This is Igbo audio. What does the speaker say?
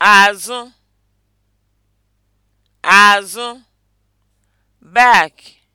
azụ azụ back